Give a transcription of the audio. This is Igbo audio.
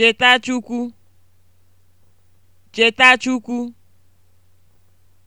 Cheta Chukwu. Cheta Chukwu.